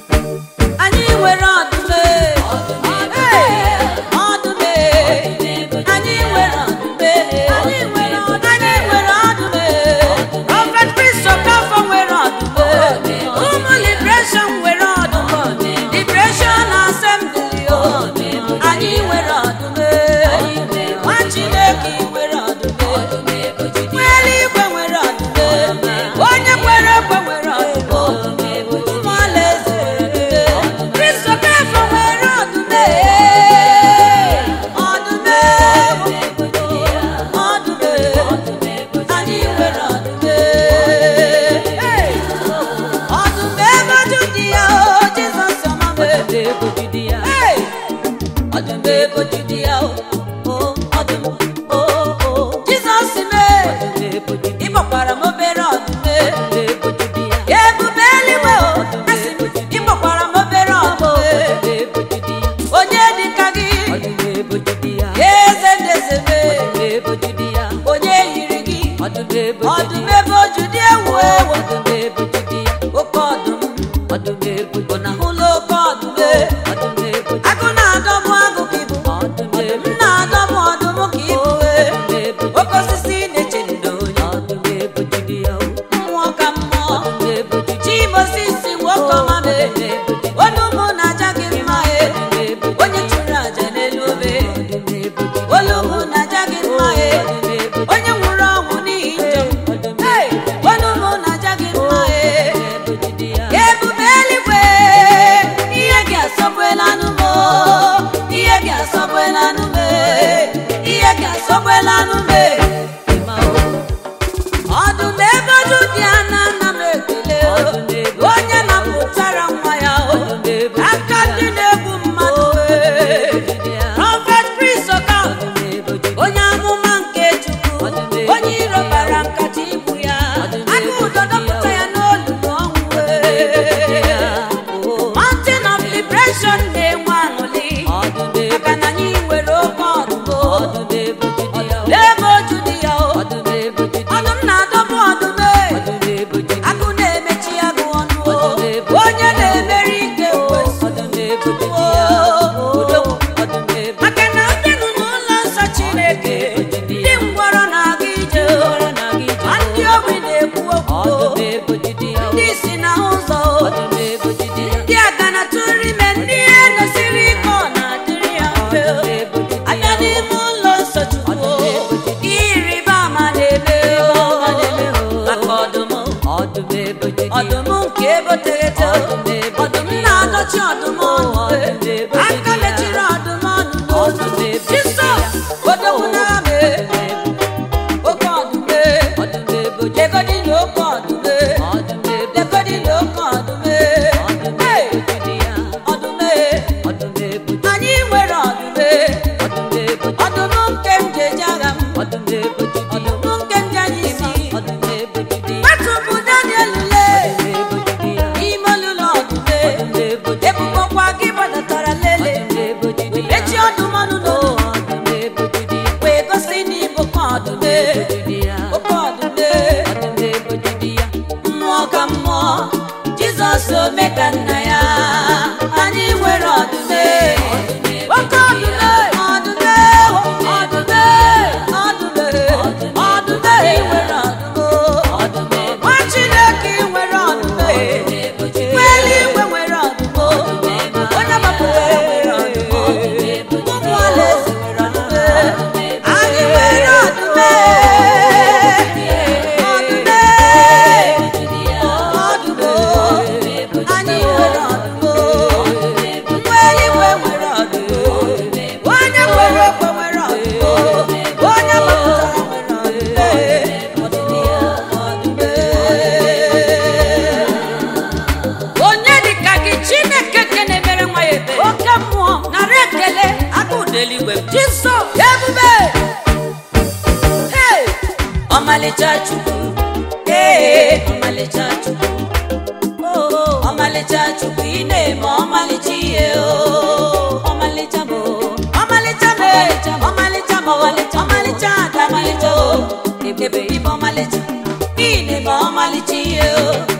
thank you na-eme ọmalịcha ihe ọmalịcha bụ ọmalịcha ọmalịcha bụ ọmalịcha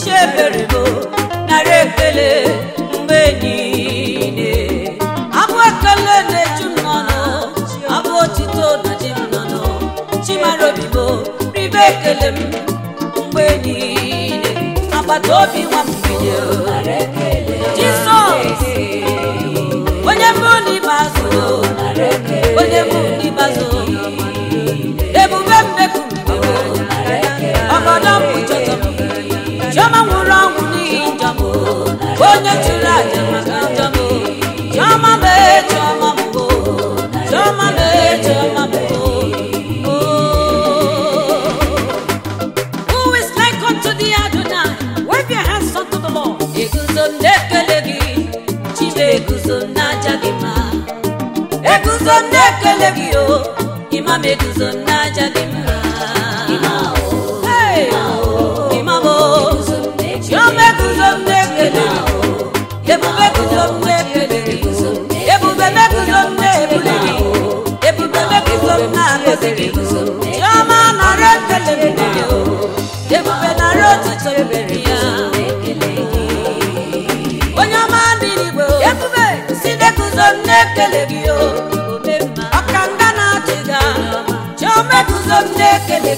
chiebere bụ narị ekele mgbe niile abụ ekele na-eju mmanụ abụ otito na ji mmanụ chimara obi bụ ribe ekele m mgbe niile agbata obi nwa onye chụrụ aja maka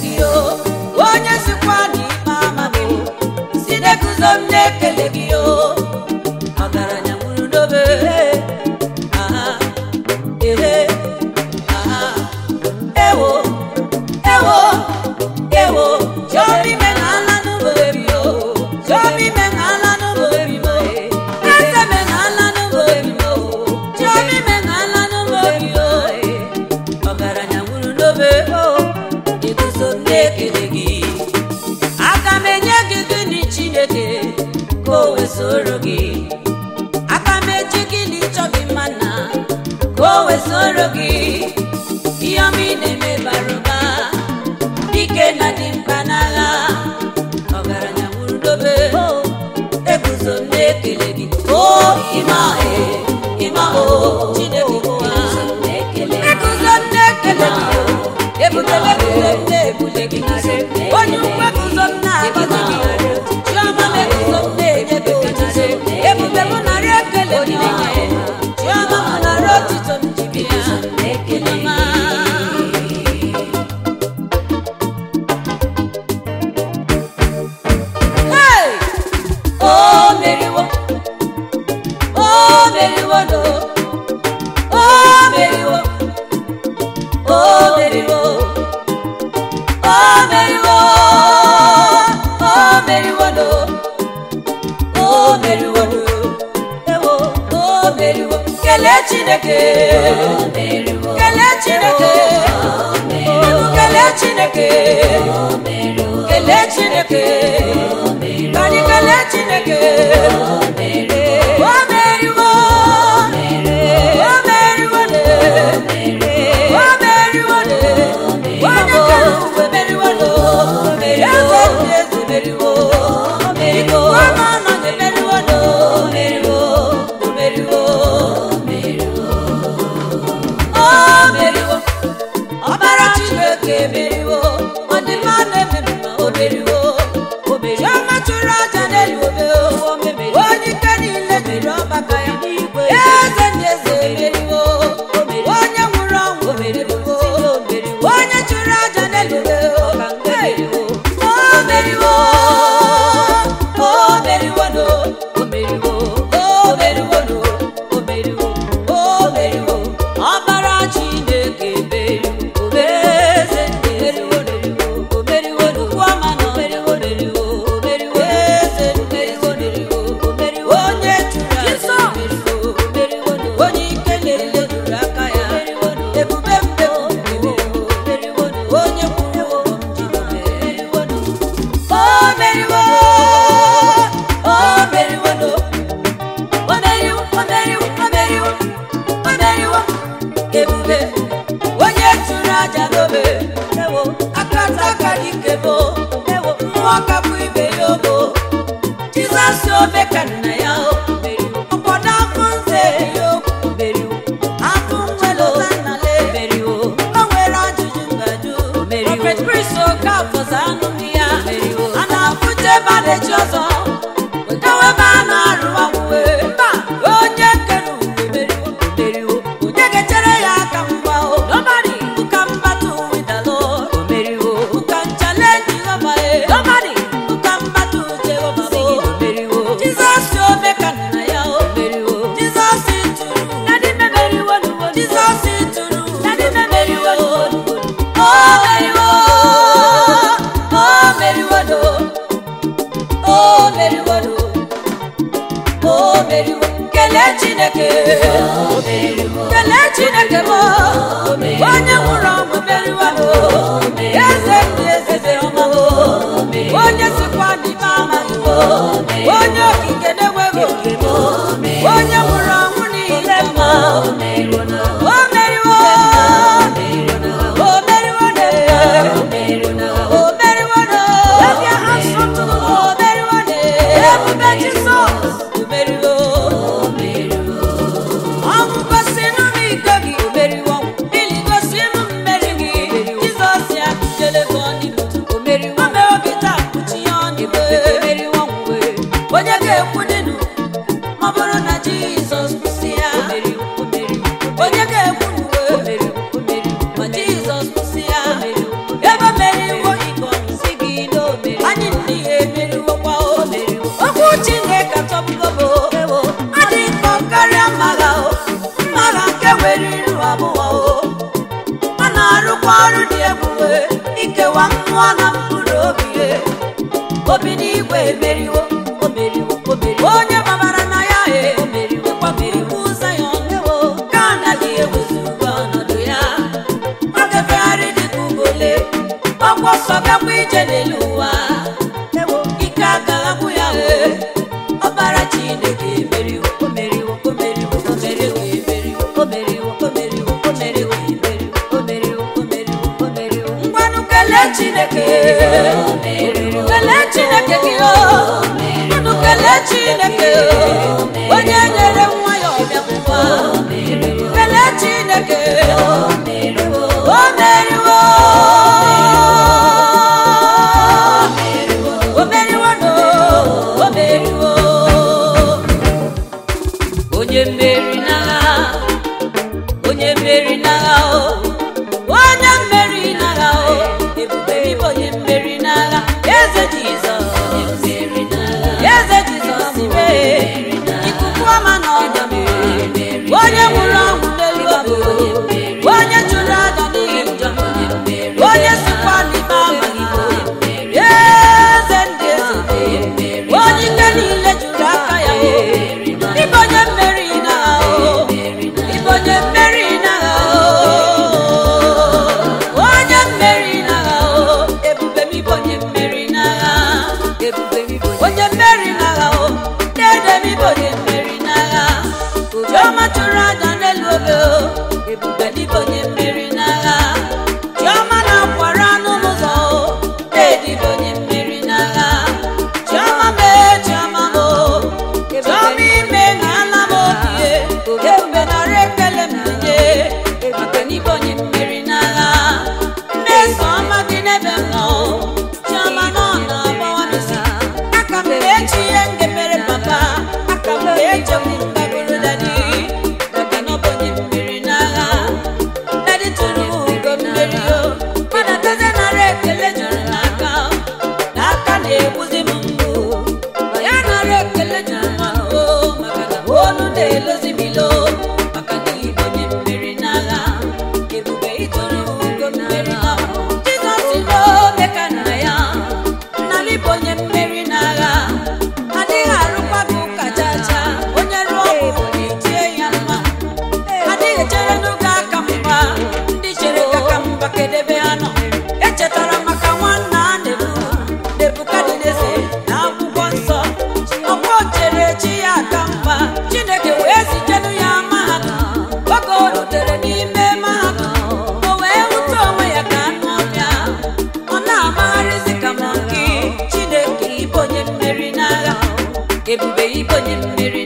redio chineke ọrụ dị ebube ikewa mmụọ na mkpụrụ obi obi n'igwe emeriwo omeriwo onye babara na ya e onye ibe onye mmiri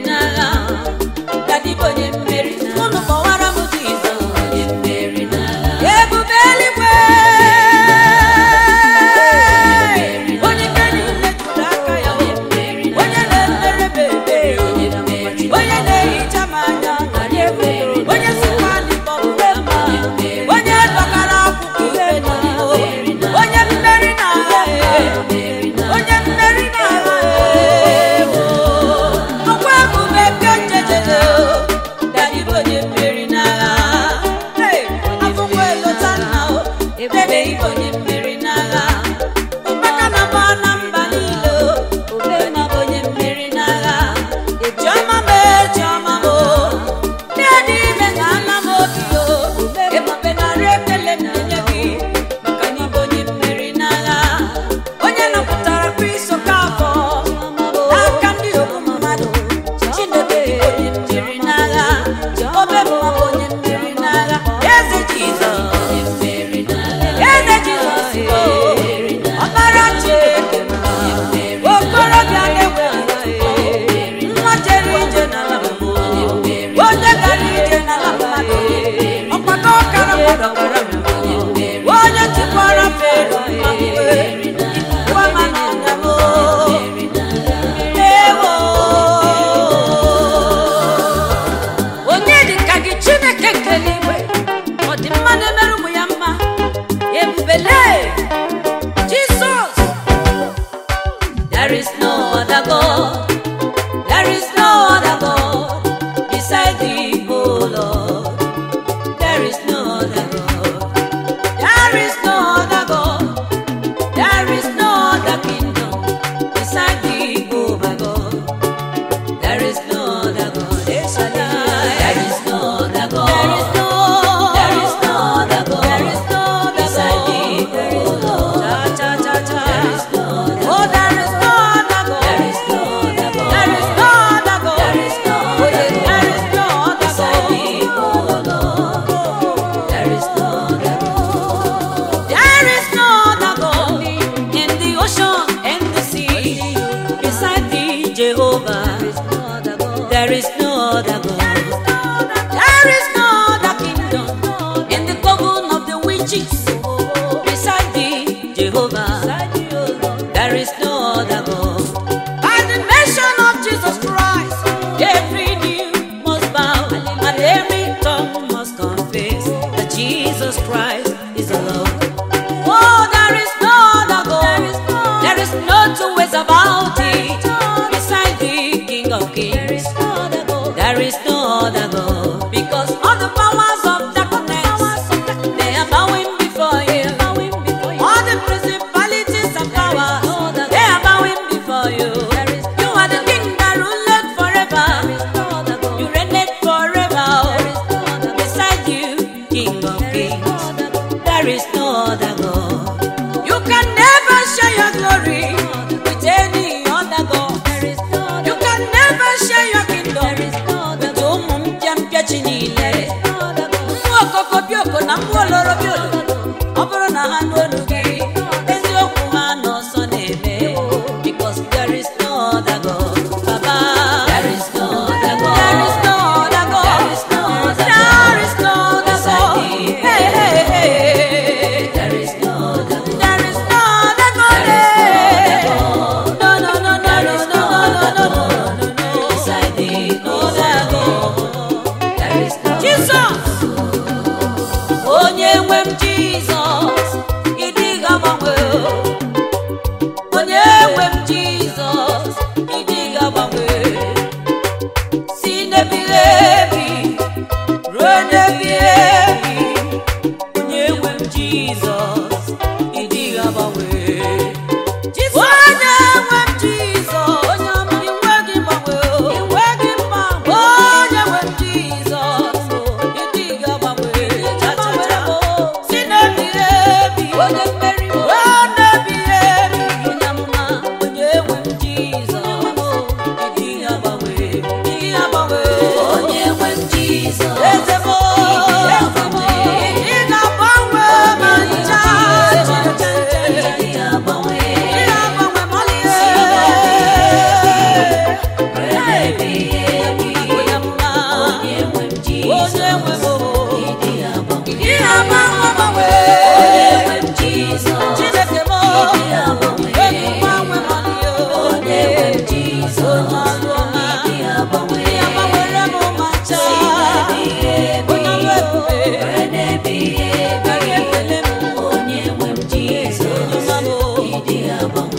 ya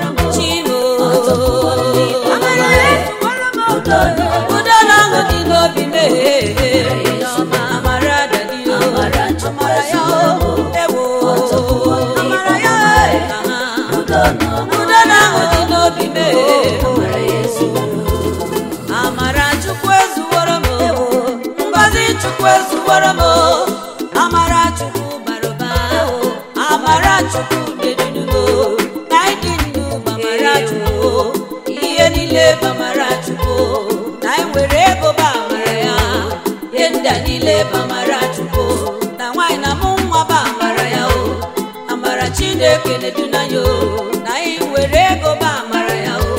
chineke na-edunanya o na anyị were ego ba amara ya o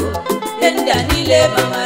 ndị a niile bamara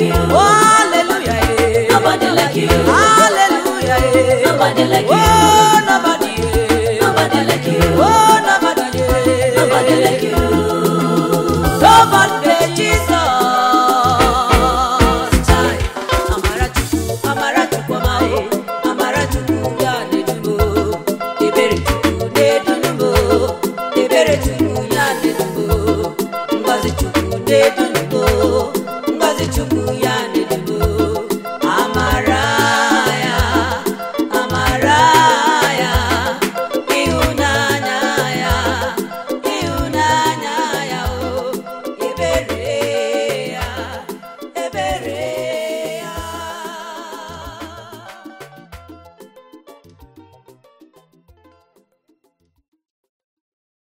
you. Oh, hallelujah. Nobody like you.